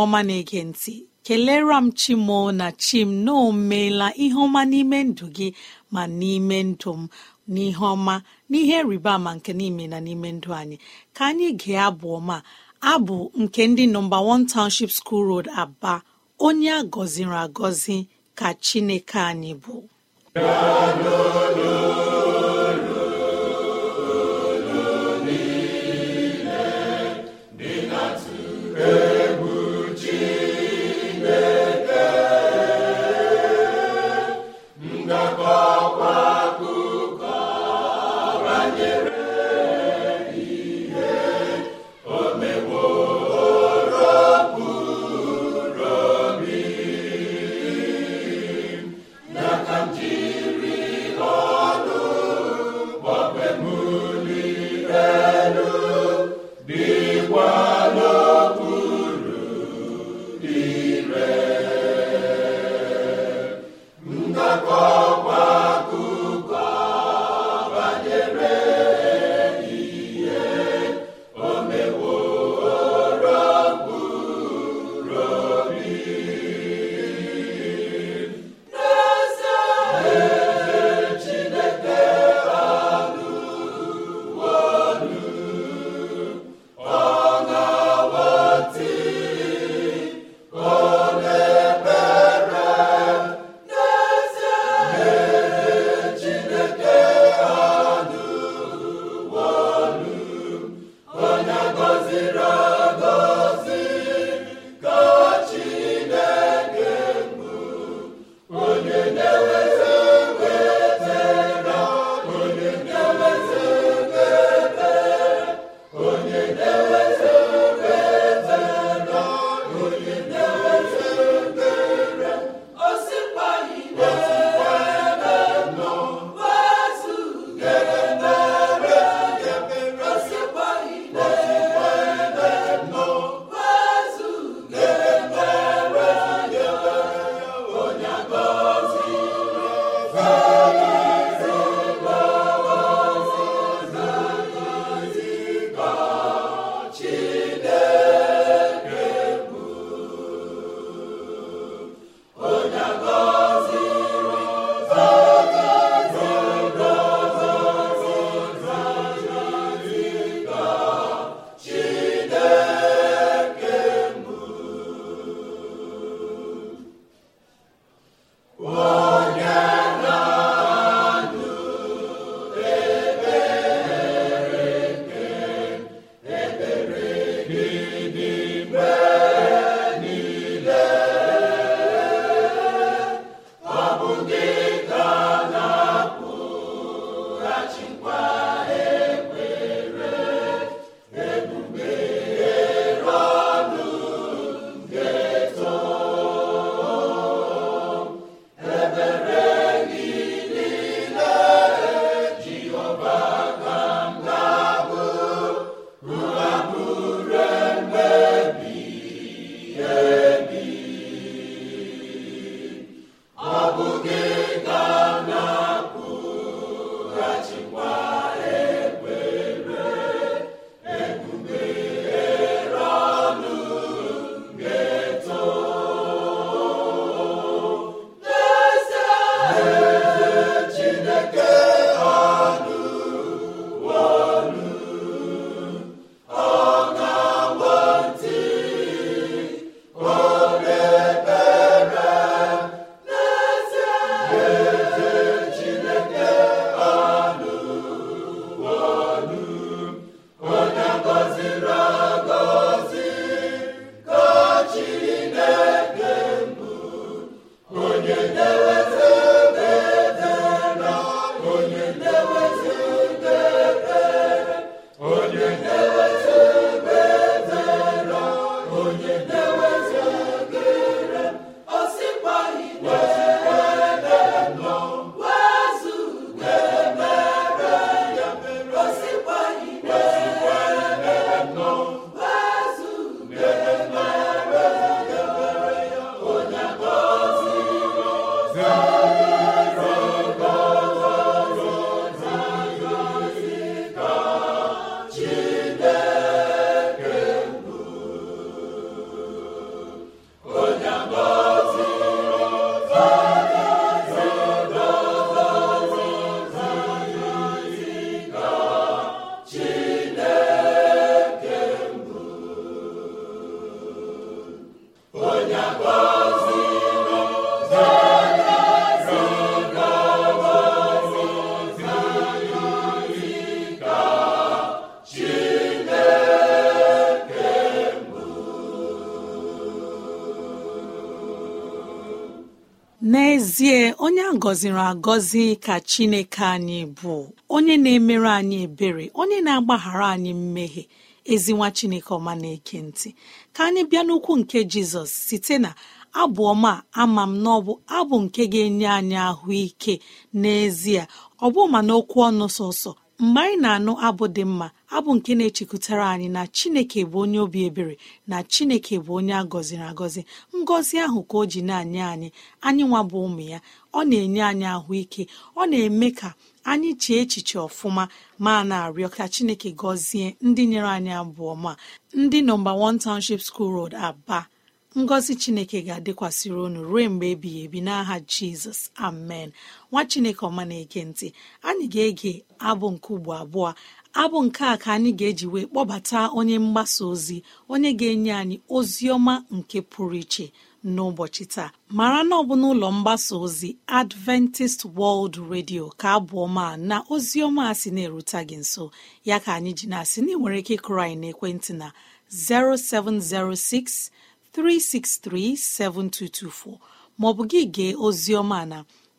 ọma na-ege ntị kelere m chimo na chim na omeela ihe ọma n'ime ndụ gị ma n'ime ndụ m n'ihe ọma n'ihe rịba ama nke n'ime na n'ime ndụ anyị ka anyị gee abụ ọma abụ nke ndị nọmba 1 township school road aba onye a gọziri agọzi ka chineke anyị bụ gọziri agọzi ka chineke anyị bụ onye na-emere anyị ebere onye na-agbaghara anyị mmehie ezinwa chineke ọma na-eke ntị ka anyị bịa n'ukwu nke jizọs site na abụọ ma ama m na ọbụ abụ nke ga-enye anyị ahụike n'ezie ọ bụ ma n'okwu ọnụ sọsọ mgbe anyị na-anụ abụ dị mma abụ nke na-echekwutara anyị na chineke bụ onye obi ebere na chineke bụ onye a gọziri agọzi ngọzi ahụ ka o ji na-anye anyị anyị nwa bụ ụmụ ya ọ na-enye anyị ahụike ọ na-eme ka anyị chee echiche ọfụma ma na-arịọ ka chineke gọzie ndị nyere anyị abụọ ma ndị nọmba 1 Township School Road aba ngọzi chineke ga-adịkwasịrị unu ruo mgbe ebighị ebi n'aha jizọs amen nwa chineke ọma na-ege ntị anyị ga-ege abụ nke ugbo abụọ abụ nke a ka anyị ga-eji wee kpọbata onye mgbasa ozi onye ga-enye anyị ozi ọma nke pụrụ iche n'ụbọchị taa mara na ọ bụ n'ụlọ mgbasa ozi Adventist World Radio ka abụọma na ozi ọma a sị na-erute gị nso ya ka anyị ji na-asị na ị nwere ike ịkụrụ anyị ekwentị na 0706 3637224 maọbụ gị gee oziọma na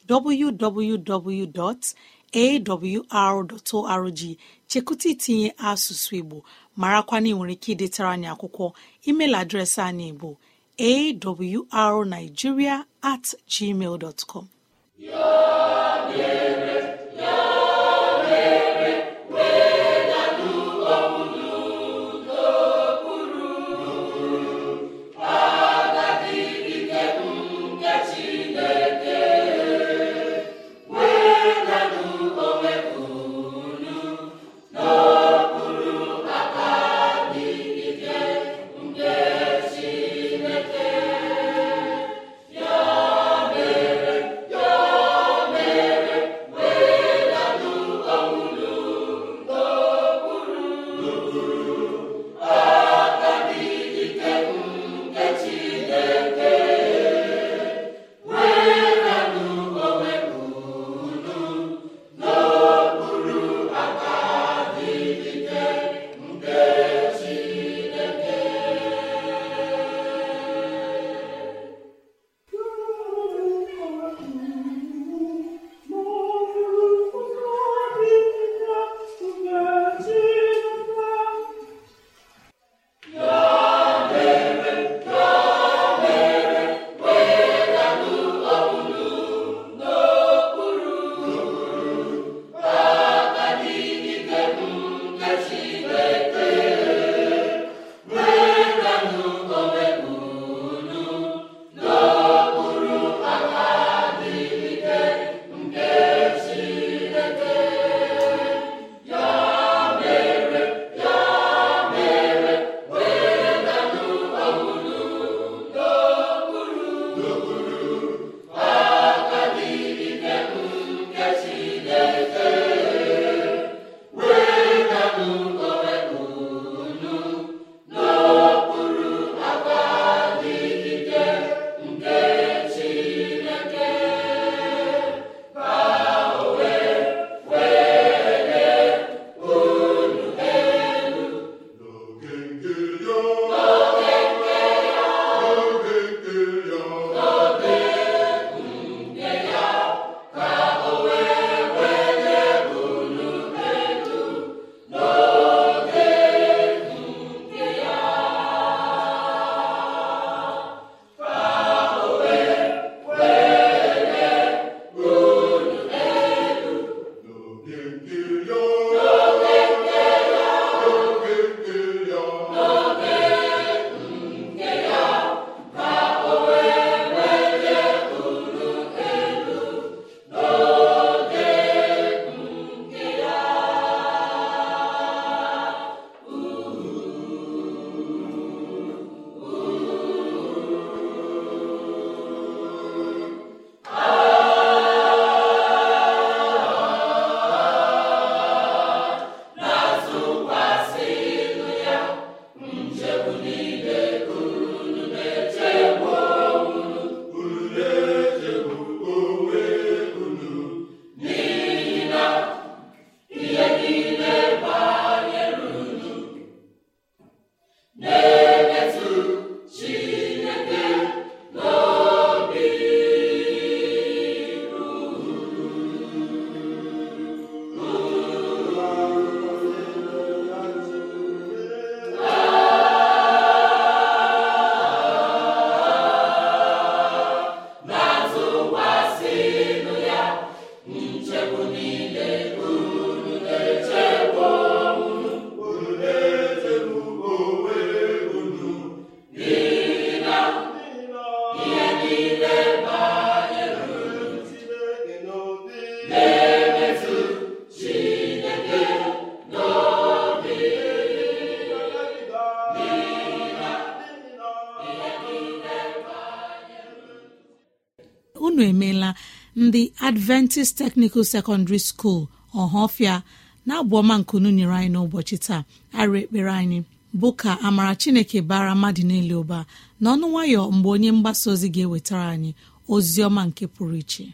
www.awr.org chekụta itinye asụsụ Igbo marakwana ị nwere ike ịdịtara anyị akwụkwọ email adreesị anyị bụ awrnigeria at gmail dot com adventist technical secondary school ọhafia na abụọma nkunu nyere anyị n'ụbọchị taa arụ ekpere anyị bụ ka amara chineke bara mmadụ niile ụba n'ọnụ nwayọ mgbe onye mgbasa ozi ga-ewetara anyị ozi ọma nke pụrụ iche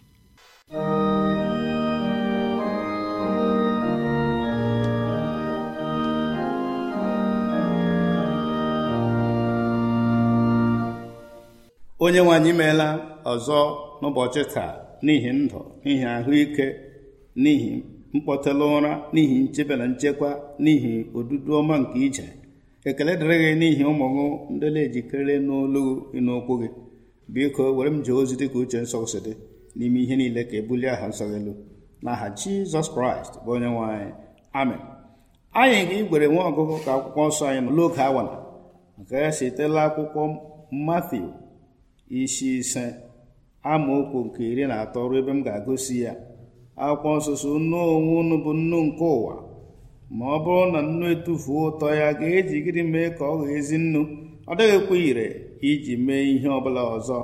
onye nwe anyị meela ọzọ n'ụbọchị taa n'ihi ndụ n'ihi ahụike n'ihi mkpọtela ụra n'ihi nchebe na nchekwa n'ihi odudu ọma nke ije ekele dịrị gị n'ihi ụmụ gị ndị na-ejikere n'olu gị n'okwu gị biko were m jee ozi dịka uche nsọ si dị n'ime ihe niile ka ebulie aha nsọ gị elu n'aha jizọs kraịst bụ onye nwanyị. anyị amen anyị ga-igwere nwa ọgụgụ ka akwụkwọ nsọ anyị nọ n'oge awala nke ya sitela akwụkwọ Matiu isi ise amaokwu nke iri na atọ ruo ebe m ga-agosi ya akwụkwọ nsụsụ nnu onwe unu bụ nnu nke ụwa ma ọ bụrụ na nnu etufuo ụtọ ya ga-eji gịnị mee ka ọ ghọọ ezi nnu ọ dịghịkwa ire iji mee ihe ọbụla ọzọ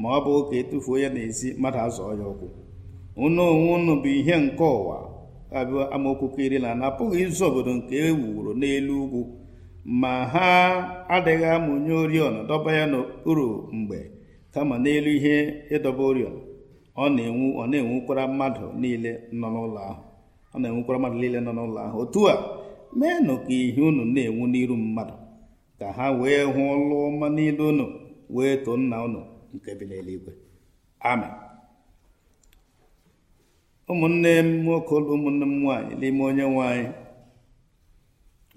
ma ọ bụ ka etufuo ya n'ezi mmadụ azụọ ya ụkwụ unu onwe unu bụ ihe nke ụwa abụ amaokwu nke iri na na-apụghị izu obodo nke e wuru n'elu ugwu ma ha adịghị amụnye oriọna dọba ya n'okpuru mgbe kama n'elu ihe ịdọba oriọna ọ na-enwu ọ na-enwukwara mmadụ niile nọ n'ụlọ ahụ ọ na-enwukwara mmadụ niile nọ n'ụlọ ahụ otu a meenụ ka ihe unu na-enwu n'iru mmadụ ka ha wee hụ ọlụ ọma niile unu wee too nna unu nke bi n'eluigwe amen ụmụnne m nwoke ụlọ ụmụnne m nwaanyị n'ime onye nwaanyị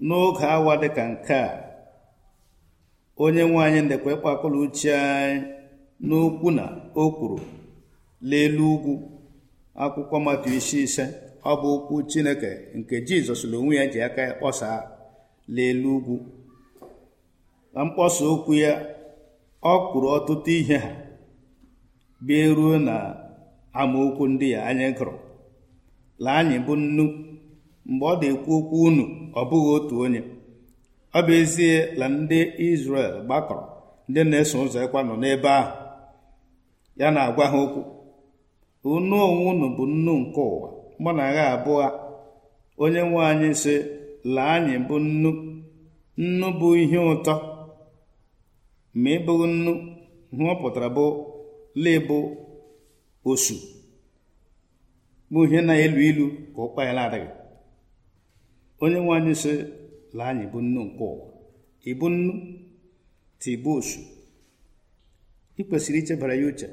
n'oge awa dịka nke a onye nwaanyị ndekwa ịkpakọrọ uche anyị n'okwu na o kwuru leelu ugwu akwụkwọ maka isi ise ọ bụ okwu Chineke nke Jizọs na onwe ya ji aka ya kpọsaa leelu ugwu na mkpọsa okwu ya ọ kwuru ọtụtụ ihe ha bịa ruo na amaokwu ndị ya anya gụrụ la anyị bụ nnu mgbe ọ dị ekwu okwu unu ọ bụghị otu onye ọ bụ ezie na ndị isrel gbakọrọ ndị na-eso ụzọ ịkwa nọ n'ebe ahụ ya na-agwa ha okwu unu onwe unu bụ nnu nke ụwa mụ na agha abụọ onye nwe anyị sị laa anyị bụ nnu nnu bụ ihe ụtọ ma ị bụghị nnu hụọ pụtara bụ lebụ osu bụ ihe na-elu ilu ka ọkpa ya na-adịghị onye nwe anyị sị laa anyị bụ nnu nke ụwa ịbụ nnu tibu osu ị kwesịrị ichebara ya uche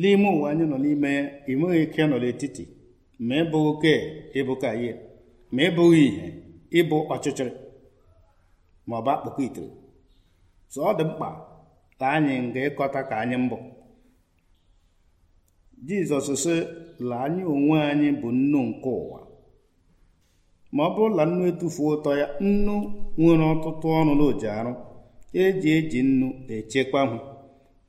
n'ime ụwa anyị nọ n'ime ya enweghị ike nọ n'etiti ma ịbụ oke ihe ma ịbụghị ịbụ ọchịchịrị ma ọ bụ akpụkọ itere so ọ dị mkpa ka anyị nga ịkọta ka anyị mbụ jizọs sị la anyị onwe anyị bụ nnu nke ụwa ma ọ bụrụ na nnu etufuo ụtọ ya nnu nwere ọtụtụ ọnụ na arụ eji eji nnu echekwa hụ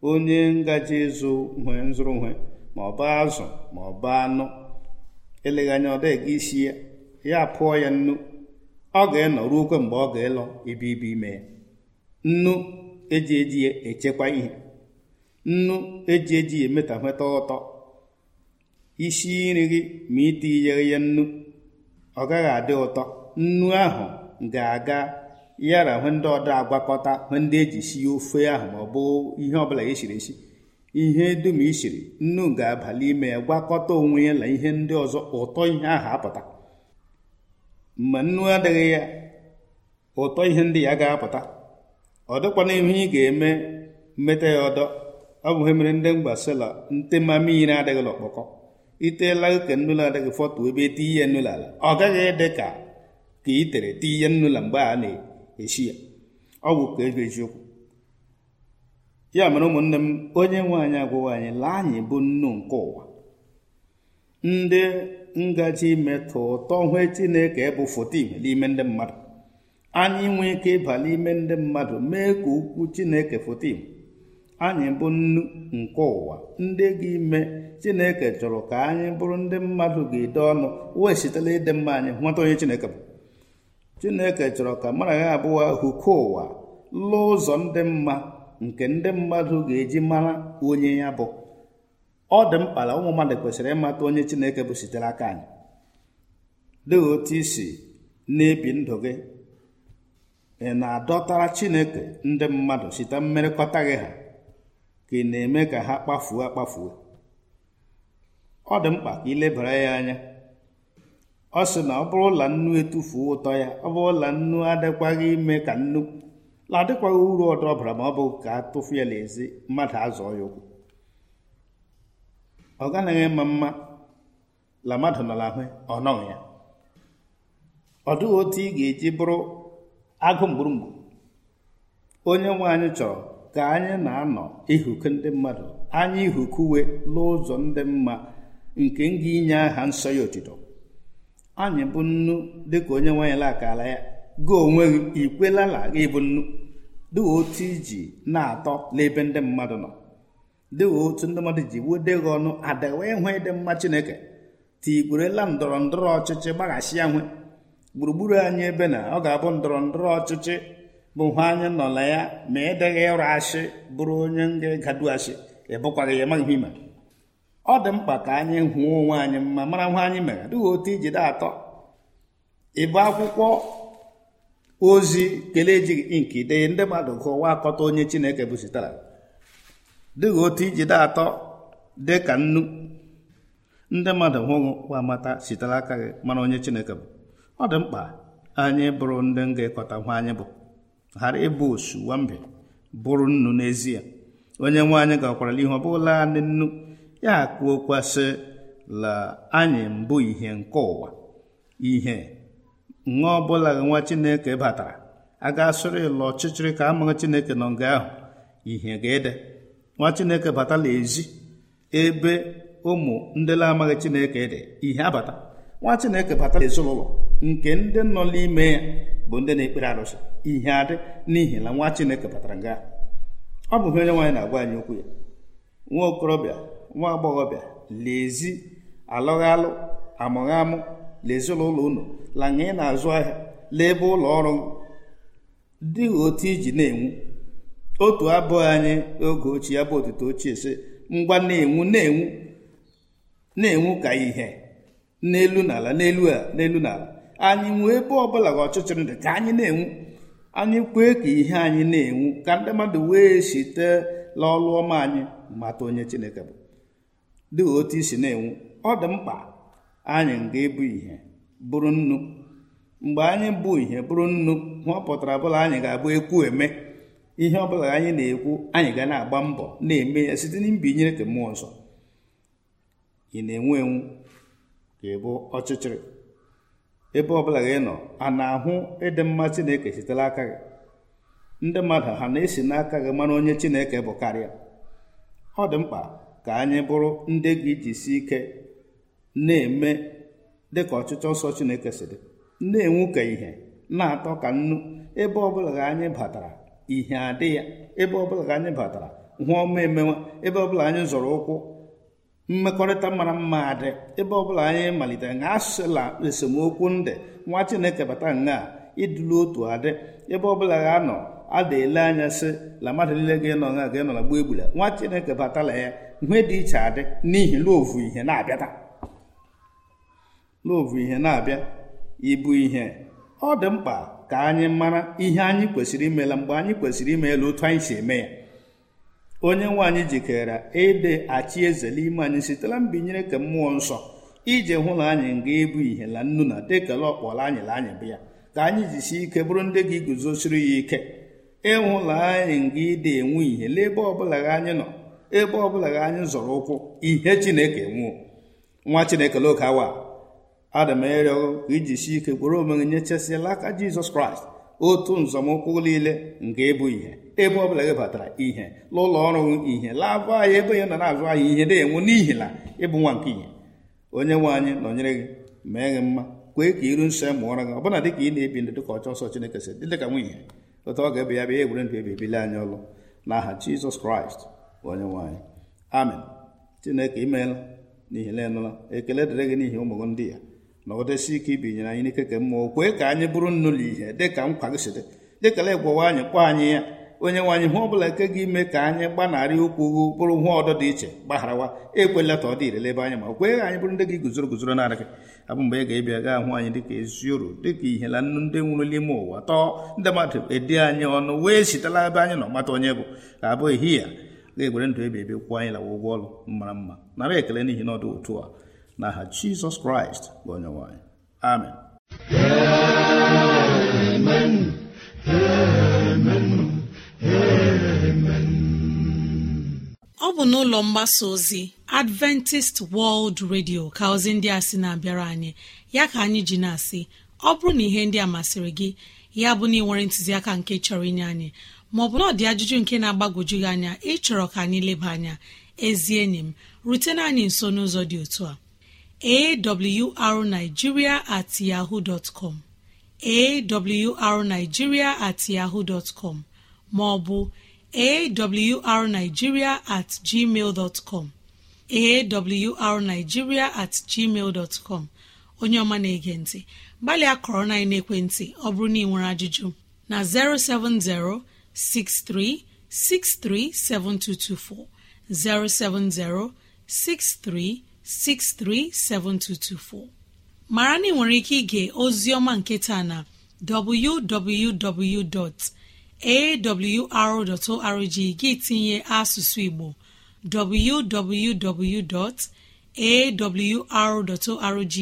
onye ngaji ịzụ nwe nzụrụ nwe ma ọ bụ azụ ma ọ bụ anụ eleghị anya ọ dịghị isi ya ya pụọ ya nnu ọ ga-enọ ruo okwe mgbe ọ ga-elọ ibe ibe ime ya nnu eji eji echekwa ihe nnu eji eji ya nweta ụtọ isi nri gị ma itinyere ya nnu ọ gaghị adị ụtọ nnu ahụ ga-aga ya na hụ ndị ọda agwakọta hụ ndị eji si ofe ahụ ma ọ bụ ihe ọbụla esiri esi ihe dum isiri nnu ga-abalị ime ya gwakọta onwe ya na ihe ndị ọzọ ụtọ ihe ahụ apụta mgbe nnu adịghị ya ụtọ ihe ndị ya ga-apụta ọ dịkwana ihe ị ga-eme mmeta ya ọdọ ọ bụghị mere ndị mgbasila ntema mmiri adịghị n'ọkpọkọ iteela ka nnụlọ adịghị fọtụ ebe eti ihe nnụlọ ala ọ gaghị dị ka ka i tere ti ihe nnụlọ mgbe a na-eyi echi ya ọ bụ ka ego eziokwu ya mere ụmụnne m onye nwe anyị agwụwa anyị laa anyị bụ nnu nke ụwa ndị ngaji metụ ụtọ hwe chineke bụ foto igwe n'ime ndị mmadụ anyị nwee ike ịba n'ime ndị mmadụ mee ka ukwu chineke foto anyị bụ nnu nke ụwa ndị ga-ime chineke chọrọ ka anyị bụrụ ndị mmadụ ga-ede ọnụ wee sitela ịdị mma anyị nweta onye chineke bụ chineke chọrọ ka mara ya abụọ ahụ ụwa lụọ ụzọ ndị mma nke ndị mmadụ ga-eji mara onye ya bụ ọ dị mkpa na ụmụ mmadụ kwesịrị ịmata onye chineke bụ sitere aka anyị dị otu isi na-ebi ndụ gị ị na-adọtara chineke ndị mmadụ site mmerịkọta gị ha ka ị na-eme ka ha kpafuo akpafuo ọ dị mkpa ka ị lebara ya anya ọ sị na ọ bụrụ ụla nnu etufuo ụtọ ya ọ bụrụ ụla nnu adịkwaghị ime ka nnu la adịkwaghị uru ọdọ ọbara ma ọ bụ ka a tụfu ya n'ezi mmadụ azụọ ya ụkwụ ọ gaghị mma mma la mmadụ nọ n'ahụ ọ nọghị ya ọ dịghị otu ị ga-eji bụrụ agụ onye nwe anyị chọrọ ka anyị na-anọ ihuku ndị mmadụ anyị ihukuwe n'ụzọ ndị mma nke nga inye aha nsọ ya otito anyị bụ nnu dịka onye nwe anyị lakala ya gị onwe gị ikwelala gị ịbụ nnu dịka otu iji na-atọ n'ebe ndị mmadụ nọ dịka otu ndị mmadụ ji wude gị ọnụ adịghị ịhụ ịdị mma chineke tigburela ndọrọ ndọrọ ọchịchị gbaghachi ya nwe gburugburu anyị ebe na ọ ga-abụ ndọrọ ndọrọ ọchịchị bụ hụ anyị nọ ya ma ịdịghị e ịrụ ashị bụrụ onye nga gaduashi ịbụkwaghị ya amaghị ihe ọ dị mkpa ka anyị hụọ onwe anyị mma mara nwa anyị mere dịghị otu ijide atọ ịbụ akwụkwọ ozi kelee ejighị nke dee ndị mmadụ gụwa akọta onye chineke bụzitara dịghị otu ijide atọ dị ka nnu ndị mmadụ hụghị wa mata sitere aka gị mara onye chineke bụ ọ dị mkpa anyị bụrụ ndị ga-ekọta nwa anyị bụ ghara ịbụ osu wambe bụrụ nnu n'ezie onye nwe anyị gakwarala ihe ọ bụla nne nnu ya o kwasị la anyị mbụ ihe nke ụwa ihe nwa ọbụla nwa chineke batara a ga-asụrụ ịlụ ọchịchịrị ka amaghị chineke nọ nga ahụ ihe ga-ede nwa chineke batala ezi ebe ụmụ ndịla amaghị chineke dị ihe abata nwa chineke batala ezinụlọ nke ndị nọ n'ime ya bụ ndị na-ekpere arụsị ihe adị n'ihi na nwa chineke batara nga ọ bụghị onye nwaanyị na-agwa anyị okwu ya nwa okorobịa nwa agbọghọbịa lezi alụghalụ amụghamụ leezinụlọ unu la ị na-azụ ahịa leebe ụlọ ọrụ dịghị otu iji na-enwu otu abụghị anyị oge ochie ya bụ otuto ochie si ngwa na-enwu na-enwu na-enwu ka ihe n'elu n'ala n'elu a n'elu n'ala anyị nwee ebe ọbụla ga ọchịchịrị dị ka anyị na-enwu anyị kwee ka ihe anyị na-enwu ka ndị mmadụ wee site n'ọlụ ọma anyị mata onye Chineke bụ dị otu isi na-enwu ọ dị mkpa anyị ga-ebu ihe bụrụ nnu mgbe anyị bụ ihe bụrụ nnu ọ pụtara bụla anyị ga-abụ ekwu eme ihe ọbụla anyị na-ekwu anyị ga na-agba mbọ na-eme ya site na mbinyere nke mmụọ nsọ ị na-enwu enwu enwu ga bụ ọchịchịrị ebe ọbụla gị nọ a na-ahụ ịdị mma Chineke sitere aka gị ndị mmadụ ha na-esi n'aka gị mara onye Chineke bụ karịa ọ dị mkpa ka anyị bụrụ ndị gị si ike na-eme dịka ọchịchọ nsọ Chineke si dị na-enwu ka ihe na-atọ ka nnu ebe ọbụla ka anyị batara ihe adị ya ebe ọbụla ka anyị batara hụọ ọma emewa ebe ọbụla anyị zọrọ ụkwụ mmekọrịta mara mma adị ebe ọbụla anyị malitere na asụla esemokwu ndị nwa Chineke bata nga ịdụlu otu adị ebe ọbụla ga-anọ a da ele anya sị la mmadụ niile ga-enọ nga ga ịnọ na gbuo egbula nwa Chineke batala ya ihe dị iche adị n'ihi loovu ihe na ihe na-abịa ịbụ ihe ọ dị mkpa ka anyị mara ihe anyị kwesịrị imela mgbe anyị kwesịrị imeela otu anyị si eme ya onye nwe anyị jikere ịdị achị eze n'ime anyị sitela mbinyere ka mmụọ nsọ ije hụ na anyị nga ịbụ e ihe la nnu na dekela ọkpọla anyị la anyị bụ ya ka anyị jisi ike bụrụ ndị gị guzosiri ya ike ịhụla anyị nga ịdị enwe ihe n'ebe ọbụla anyị nọ ebe ọbụla gị anyị zọrọ ụkwụ ihe chineke nwụọ nwa chineke n'oge awa ada m ka iji si ike kwere nye nyechesịala aka jizọs kraịst otu nzọmụkwụ niile nke ịbụ ihe ebe ọbụla gị batara ihe n'ụlọ ọrụ ihe laabụ anyị ebe ya nọ na-azụ anyị ihe na enwe n'ihi na ịbụ nwa nke ihe onye nwe anyị nọnyere gị mee gị mma kwee ka iru nsọ e mụọrọ gị ọbụna dịka ị na-ebi ndụ dịka ọchọ ọsọ chineke si dị dịka ihe otu ọ ga-ebe ya bịa egwere ndụ ebi ebili anyị ọlụ n'aha jizọs kraịst onye nwanyị amen chineke imeela n'ihi na ekele dịrị gị n'ihi ụmụ gị ndị ya nọgidesi ike ibinyere anyị n'ike ke mmụọ kwee ka anyị bụrụ nnu ihe dịka nkwa gị si dị dịkala ịgwawa anyị kpọọ anyị ya onye nwaanyị hụ ọbụla ike gị ime ka anyị gbanarị okwu ugwu bụrụ hụ ọdọ dị iche gbagharawa ekwela ka ọ dị irele ebe anyị ma kwee anyị bụrụ ndị gị guzoro guzoro narị gị abụ mgbe ị ga-ebịa gaa hụ anyị dịka ezi uru dịka ihe na nnu ndị nwụrụ n'ime ụwa tọọ ndị mmadụ edi anyị ọnụ wee sitela ebe anyị nọ mata onye bụ abụ ehihie na-egwere ndụ ebe ebe kwụọ anyị lawa ụgwọ ọrụ mara mma nara ekele n'ihi na ọdụ otu a na aha jizọs kraịst bụ onye nwanyị. amen amen ọ bụ n'ụlọ mgbasa ozi adventist world radio ka ozi ndị a sị na-abịara anyị ya ka anyị ji na-asị ọ bụrụ na ihe ndị a masịrị gị ya bụ na ị nwere ntụziaka nke chọrọ inye anyị maọbụ na dị ajụjụ nke na-agbagwoju gị anya ịchọrọ ka anyị leba anya ezi enyi m rutena anyị nso n'ụzọ dị otu a awrnigeria at yahoo dot com awrnigeria at yahoo dot com maọbụ awrnigeria at gmail dot com awrnigeria at gmail dot com onye ọma na-ege ntị gbalịa kọrọ na ekwentị ọ bụrụ na ị nwere ajụjụ na 070 63637224 mara na ị nwere ike ige ozioma nketa na www.awr.org gị tinye asụsụ Igbo www.awr.org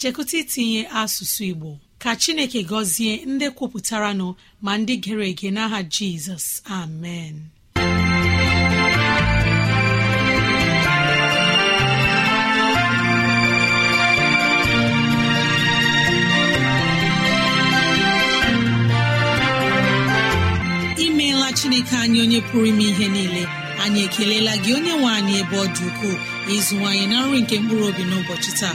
chekụta itinye asụsụ Igbo ka chineke gọzie ndị nọ, ma ndị gere ege n'aha jizọs amen imeela chineke anyị onye pụrụ ime ihe niile anyị ekelela gị onye nwe anyị ebe ọ dị ukwuu ịzụwanyị na nri nke mkpụrụ obi n'ụbọchị taa